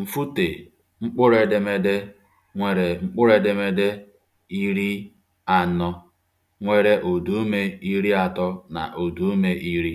Mfute mkpụrụ edemede nwere mkpụrụ edemede iri anọ nwere ụdaume iri atọ na ụdaume iri.